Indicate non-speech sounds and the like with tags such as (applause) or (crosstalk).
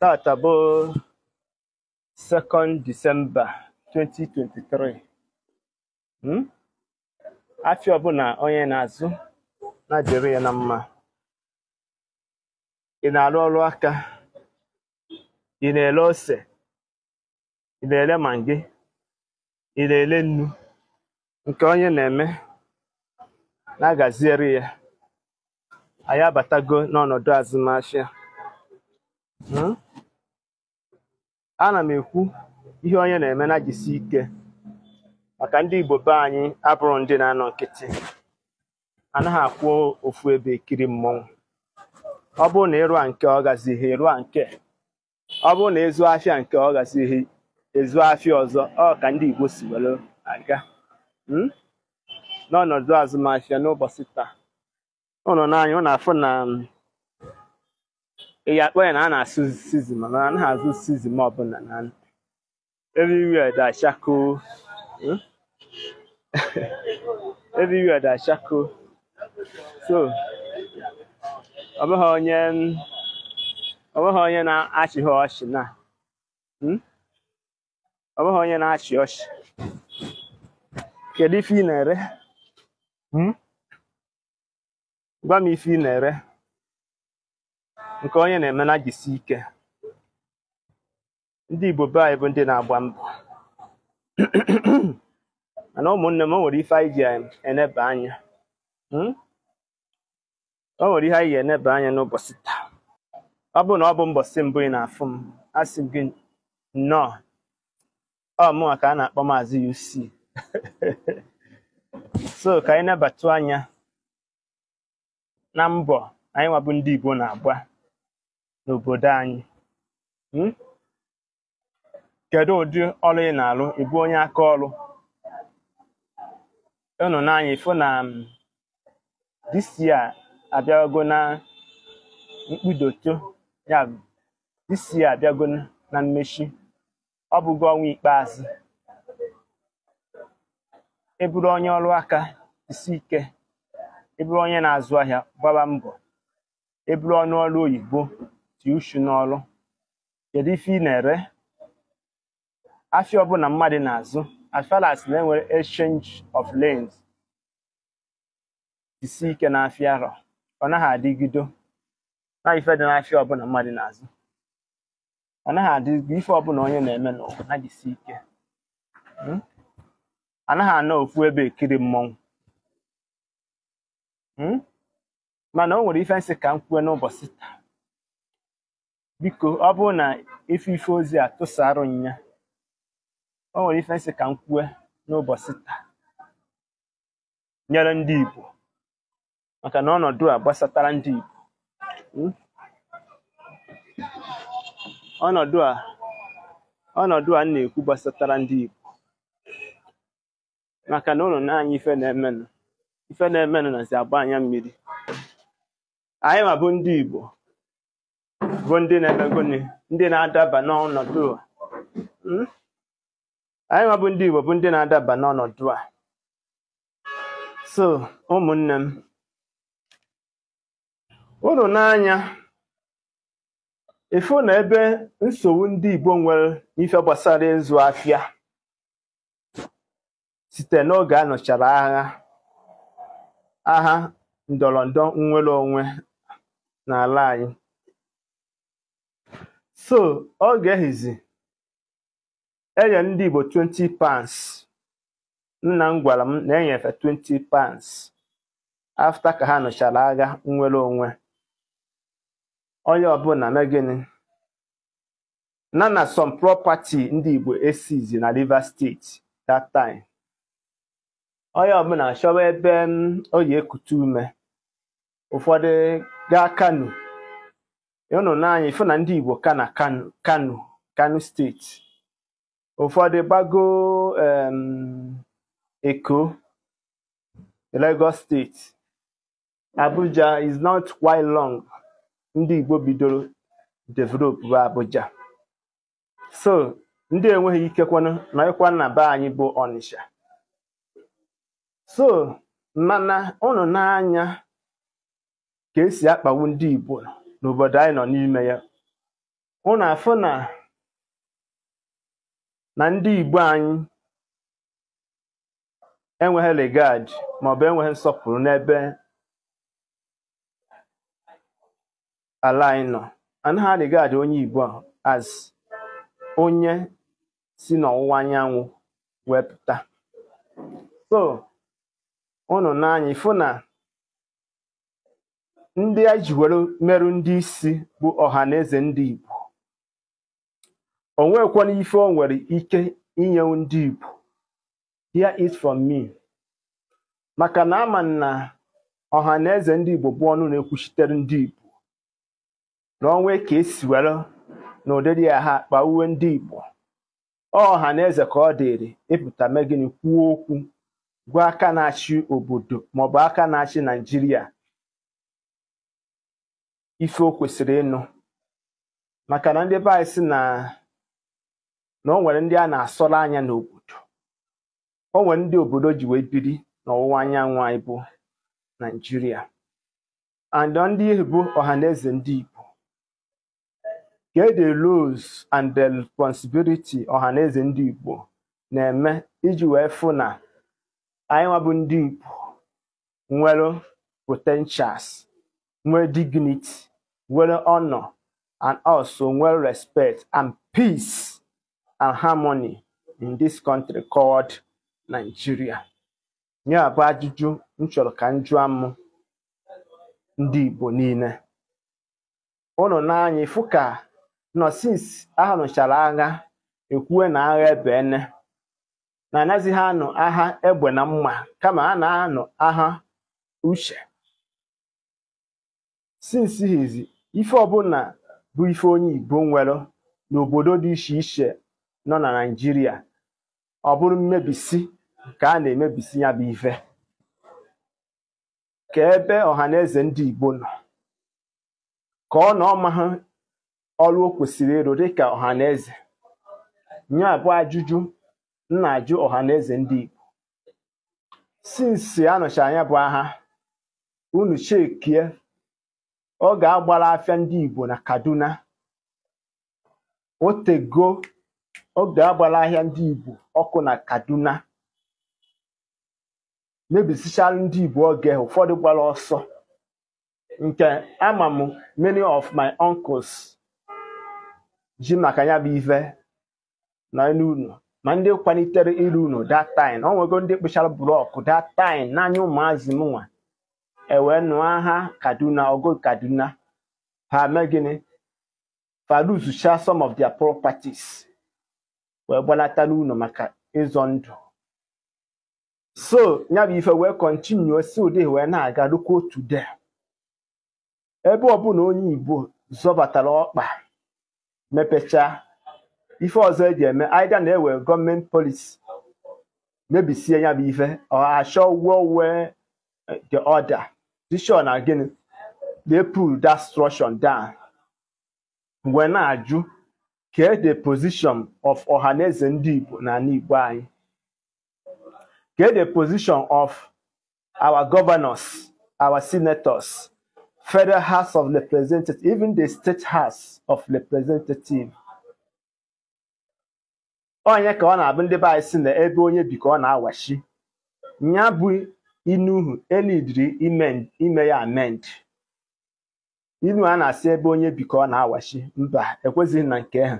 taata hmm? bụ 2nd Disemba 2023 afịa ọbụla onye na-azụ na-adịrị ya na mma ị na-arụ ọrụ aka ị na-ele ose ị na-ele mangi ị na-ele nnu nke onye na-eme na-agaziere ya anyị abatago n'ọnọdụ azụmahịa hmm? ana m ekwu ihe onye na-eme na jisi ike maka ndị Igbo be anyị abụrụ ndị na-anọ nkịtị anaghị akwụ ofu ebe ekiri mmọnwụ ọ bụrụ na ịrụa nke ọ gazighị ịrụa nke ọ bụrụ na ezu afịa nke ọ gazighị ezu afịa ọzọ ọ ka ndị Igbo si were aga hmm? n'ọnọdụ azụmahịa n'ụbọchị taa ụnụ n'anya ụnụ afụ na um, ị akpọ ya na a na-asụ sizin mana na azụ sizin ọbụla na everywhere da shako hmm? (laughs) everywhere da shako so ọ bụghị onye ọ bụghị onye na-achịghị ọchị na hmm? ọ bụghị onye na-achị ọchị kedu ife ị na-ere hmm? gwa m ife ị na-ere nke onye na na jisi ike ndị Igbo be anyị bụ ndị na-agba mbọ (clears throat) mana ụmụnne m nwere ife anyị ji eneba anya hmm? o nwere ihe anyị ji eneba anya n'ụbọchị taa ọ bụrụ na ọ bụ mbọsị mbụ ị na-afụ m asị m gị nnọọ ọ mụwa ka a na-akpọ maazị UC (laughs) so ka anyị nebatu anya na mbọ anyị nwabụ ndị Igbo na-agba n'obodo anyị um kedu ụdị ọrụ ị na alụ ebu onye aka ọrụ unu n'anya ịfụ na um this abịago na mkpụdoto ya bụ this abịago na mmechi ọ bụgo ọnwa ikpeazụ eburu onye ọrụ aka isi ike eburu onye na-azụ ahịa gbaba mbọ ịbụrụ ọnụọrụ ọnụ ọrụ oyibo iti n'ọrụ kedu ife ị na-ere afịa ọbụla mmadụ na-azụ as na enwere exchange of lanes isi ike n'afịa arọ ọ naghị adịgido na ife dị n'afịa ọbụla mmadụ na-azụ ọ naghị adịgo ife ọbụla onye na-eme n'ụwa na-ejisi ike anaghị hmm? anọ ofu ebe ekiri mmọnwụ hmm? mana o nwere ife nsị ka m kwue n'ụbọchị taa biko ọ bụrụ na ife ozi a tụsara m ya o nwere ife nsị ka m kwue n'ụbọchị taa nyere ndị Igbo maka na ọnọdụ a gbasatara ndị Igbo hmm? ọnọdụ a ọnọdụ a na-ekwu gbasatara ndị Igbo maka na ụlọ na ife na-emenụ ife na-emenụ nazi agba anya mmiri anyị ma bụ ndị Igbo bụ ndị na-emegoni ndị na-adaba n'ọnọdụ hmm? anyị nwa bụ ndị Igbo bụ ndị na-adaba n'ọnọdụ a so ụmụnne m ụlọ n'anya ifu na ebe nsogbu ndị Igbo nwere ife gbasara ịzụ afịa site n'oge a nụchara agha agha ndọrọndọ nnwere onwe n'ala anyị so ọ ga-ehizi enye ndị Igbo 20 pounds nna m gwara m na enyefe 20 pounds afta ka ha nụchara agha nnwere onwe onye ọbụla na gịnị na na some property ndị Igbo esizi na Rivers Steeti that time onye ọbụla chọwa ebe mm, oyi ekute ume ụfọdụ gaa Kano unu n'anya na ndị Igbo ka na Kano Kano steeti ụfọdụ gbago Eko Lagos steeti Abuja is not quite long ndị Igbo bidoro develop bụ Abuja so ndị enweghị ike nọkwa na be anyị bụ Ọnịsha so mana unu n'anya ka esi akpawu ndị Igbo n'obodo anyị nọ n'ime ya hụ na na na ndị Igbo anyị enweghị regard maọbụ enweghị nsọpụrụ n'ebe ala anyị nọ anaghị regard onye Igbo as onye si n'ọwụwa anyanwụ wepụta so unu n'anya ịfụ na ndị a ji were merụ ndị isi bụ ọha na eze ndị Igbo o nwekwana ife o nwere ike inye ndị Igbo here is from me maka na ama na ọha na eze ndị Igbo bụ ọnụ na-ekwuchitere ndị Igbo na onwe ka esi were na ụdịrị ya ha akpa uwe ndị Igbo eze ka ọ dịrị ịpụta megịnị kwuo okwu gwa aka na-achị obodo maọbụ aka na-achị Naijiria ife o kwesịrị ịnụ maka na ndị ebe anyị si na na o nwere ndị a na-asọrọ anya n'obodo o nwere ndị obodo ji wee biri n'ọwụwa anyanwụ anyị bụ naijiria and ndị bụ ọha na eze ndị igbo ka e and the responsibility ọha na ndị igbo na-eme iji wee fụ na anyị nwabụ ndị igbo nwere potentials nwee dignity nwere honor and also well respect and peace and harmony in this country called Nigeria. Ya bụ ajụjụ m chọrọ ka m jụọ m ndị Igbo niile ụnụ n'anya ifu ka nọ since a agha ekwue na agha ene na anaghịzi ha anụ agha egbe na mma kama ha na-anụ agha uche sins hizi ife ọbụla bụ ife onye Igbo nwere n'obodo dị iche iche nọ na Naịjirịa ọ bụrụ mmebisi ka a na-emebisi ya bụ ife ka ebe ọhaneze ndị Igbo nọ ka ọ na ọmahụ ọrụ o kwesịrị ịrụ dịka ọhaneze Nye abụ ajụjụ nna na-ajụ ọhaneze ndị Igbo sinsi anọchi anya bụ agha unu chekie ọ ga-agbara afịa ndị Igbo na Kaduna otego ọ ga-agbara ahịa ndị Igbo ọkụ na Kaduna mebisichara ndị Igbo oge ụfọdụ gbara ọsọ nke ama m many of my uncles ji maka ya bụ ife na elu ma ndị kwalitere iru unu dat time ọ nwego ndị kpụchara blọk that time n'anya ụmụazị m ewe nụọ aha kaduna ogo kaduna ha mee gịnị fa some of their properties wee gbalata n'ụlọ maka ịzọ ndụ so ya bụ ife wee kọntinuo si ụdị wee na-aga rukwa otu de ebe ọbụla onye igbo zọbatara ọkpa mepecha ife ọzọ eji eme aida na-ewe gọọmenti polisi mebisie ya bụ ife ọ achọ wee wee the order Jishọn na gịnị they pull dat structure down mgbe na-ajụ kee the position of ọhaneze ndị Igbo na Igbo anyị kee the position of our governors our senators federal house of representatives even the state house of representatives onye ka ọ na-abụ ndị be anyị si na ebe onye bi ka ọ na-awachi ya bụ Inuhu, uhu ime ya amend. Inu a na-asị ebe onye bikọ na-awachi. Mba, ekwezighị na nke ha.